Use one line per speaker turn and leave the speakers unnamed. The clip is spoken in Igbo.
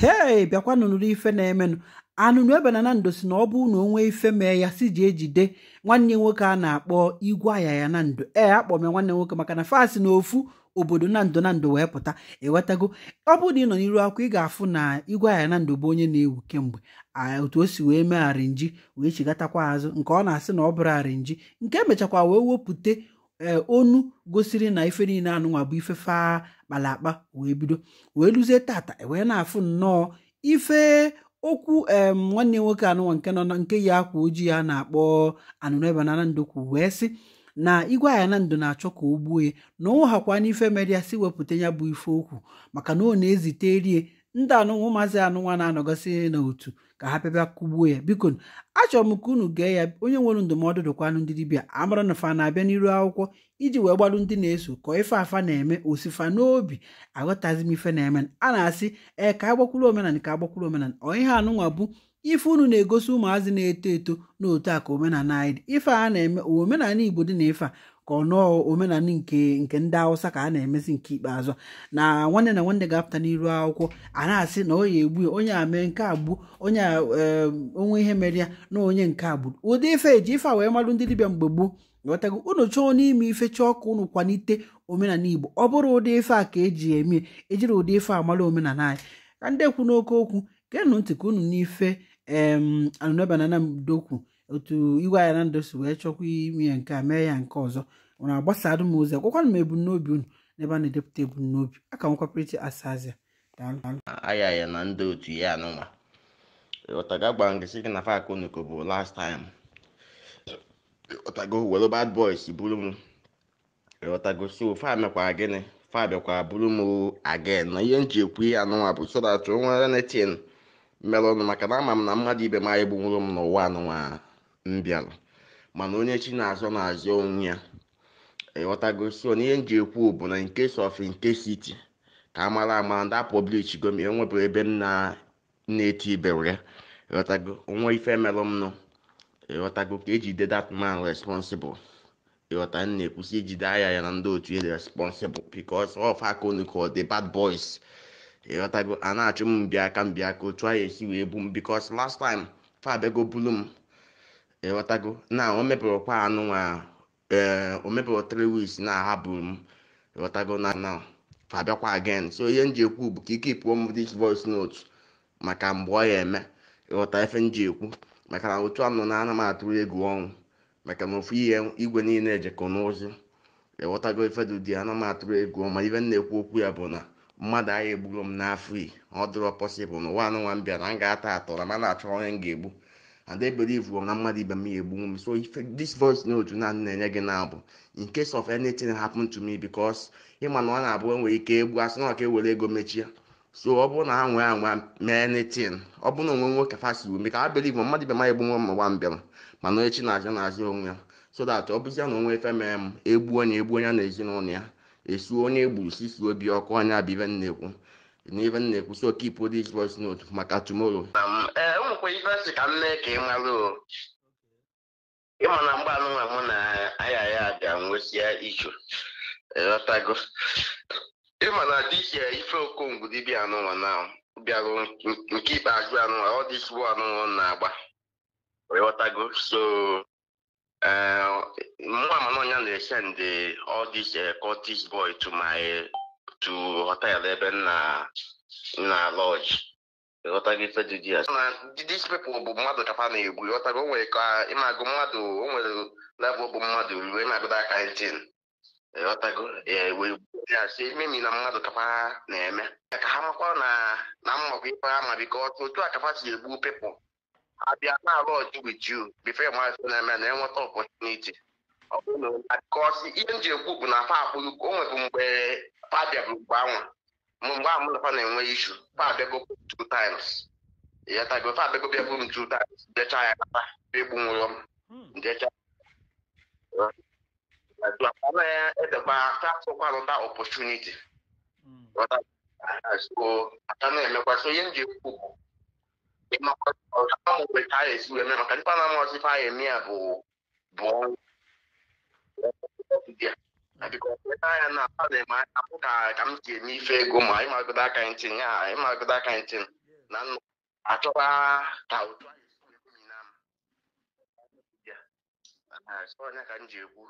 hei biakwa nụnụrụ ife na-emenụ anụnụ ebe na nando si na ọ bụ na onwe ife mee ya si ji ejide nwanne nwoke a na-akpọ igwe aya ya na ndo ee akpọ m ya nwanne nwoke maka na fasi na ofu obodo na ndo na wee pụta ewetago ọ bụrụ na ị nọ n'iru akwụkwọ ị ga-afụ na igwe aya na bụ onye na-ewu kemgbe otu o si wee mee arinji wee chigatakwa azụ nke ọ na-asị na ọ bụrụ arinji nke emechakwa wee wepụta eh, onu gosiri na ife niile anụnwa bụ ife faa akpalakpa wee bido wee luzie tata wee na-afụ nnọọ ife okwu em nwanne nwoke anụnwa nke nọ nke yi akwa ojii a na-akpọ anụnụebe na ndokwu wee sị na igwe aya na ndụ na-achọ ka o gbuo ya na ọ hakwa n'ife mere ya si wepụta ya bụ ife okwu maka na ọ na-ezite rie ndị anụnwa ụmụazị nwa na-anọgọsị n'otu ka ha pịaba kugbuo ya biko achọrọ m ka unu gee ya onye nwere ndụmọdụ dụkwanụ ndị dibịa amara na fa na-abịa n'iru akwụkwọ iji wee gbalụ ndị na-eso ka ife afa na-eme osifa n'obi aghọtazi m ife na-eme a na-asị ee ka agbakwuru omenala ka agbakwuru omenala Ọ ha anụnwa bụ ife unu na-egosi ụmụazị na-eto eto n'otu a ka omenala anyị dị ife a na-eme omenala Igbo dị na ife a ka ọnọọ omenala nke nke ndị awụsa ka a na-emezi nke ikpeazụ na nwanne na nwanne ga-apụta n'iru akwụkwọ a na-asị na onye egbu onye a mee nke agbu onye onwe ihe mere ya na onye nke agburu ụdị ife eji ife a wee marụ ndị dibịa mgbe gboo ghọtago unu chọọ n'ime ife chọọ ka unu kwalite omenala igbo ọ bụrụ ụdị ife a ka eji eme ejiri ụdị ife a malụ omenala anyị ka ndị kwu n'oke okwu geenụ ntị ka unu n'ife em banana na anamdokwu otu iwe anyị na ndụ si wee chọkwa ime ya nke a mee ya nke ọzọ nwere agbasadụ m ozi akwakwanụ m ebumnobi unu n'ebe a na-edepụta ebumnobi aka nkwapụrịta asazia
aya ya na ndị otu ya anụnwa ọtaga gwara ngịsị gị na fak bụ last time m ihe nji bụ nwere ọnụ maka ama m na mmadụ ibe m anyị m n'ụwa m bịara mana onye chi na-azọ na-azọ onwe ya ịghọtago so n'ihe m ji ekwu bụ na nkes case of siti ka a mara ama ndị a publish go e m enwebụrụ ebe m na-eti ibere ya ịghọtago onwe ife merụ m ịghọtago ka ejide that man responsible ịghọta m na-ekwusi ijide aya ya na ndị otu ya e responsible because of akonu ka the bad boys ịghọtago a na-achụ m mbịaka mbịaka otu a ya esi wee bu m bikos last time fa bulu m ịghọtago na o mepụrụkwa anụnwa ee eh, o mepụrụ three weeks na ahapụrụ m ịghọtago na na abịakwa again so ihe m ji ekwu bụ ka ike pụọ m this voice note maka mgbe ọ ya eme ịghọta efe m ji ekwu maka na otu anụ na ana m atụrụ egwu ọnwụ maka na ofu ihe igwe niile ejekọ n'ozi ịghọtago ifedụ dị ana m atụrụ egwu ma ibe m na-ekwu okwu ya bụ na mmadụ agha egburu m n'afọ iyi ọ dịrọ pọsịbụl na ụwa anụnwa m bịara m ga-ata atọrọ ma na-achọ onye m ga-egbu and they believe na mmadụ ibe m ya egbu m so if this voice note na na-enye gị na-abụ in case of anything happen to me because ịma na ọ na-abụ enwere ike egbu asị na ọka ewere ego mechie so ọ bụrụ na ha nwee anwa mee anything ọ bụrụ na onwe nwoke fasi ume ka ha believe mmadụ ibe m ya egbu nwa m nwa mbịara mana echi na-azụ na-azụ onwe ya so that ọ bụzie na onwe efe mere m egbuo onye egbu onye na ezinụlọ ya esuo onye egburu sisi obi ọkụ onye abibe na-ekwu n'ebe m na-ekwusi okipụ this voice note maka tomorrow um, enwekwa eh, ka m mee ị mara na mgbe anụnwa mụ na aya ya ga-enwesia ichu ịghọtago ịma na ife okongwu dibịa anụnwa na bịarụ nke ajụ anụnwa ọ dịsiwo anụnwa na-agba ịghọtago so eh, mụ ọnya na-esend eh, to họtelụ ebe nna na lọji these people bụ mmadụ kapa na-egwu ghọtago nwere ka ịmagụ mmadụ o nwere level bụ mmadụ ruo aka emi na mmadụ kapa na-eme ka ha makwa na mmakwa ife ha ma ọtụ otu a kapa si egbu people abịa na-alụ ọjụ with you before na-eme na-enweta opportunity ọ bụrụ na ihe m ji ekwu bụ na afa akpụ o mgbe padịa bụ mgbe anwa mgbe a mụnakwa na-enwe ishu fabego two times ịghọtago fabego bịa bụrụ two times jecha ya kata bịa egbunwụrọ m hmm. jecha ana ya edekwa fafọkwarụta opportunity hmm. so aka na-emekwa so ihe m ji ekwu bụ ịmakwa ka a esi wee mee maka ndị panama ọsịfa ya eme ya bụ bụ ọnwụ na adị m anya pụta ka m ji eme ife ego ma ịmagodo aka ntin ya ịmagodo aka ntin na ka anyị na m ka ji egwu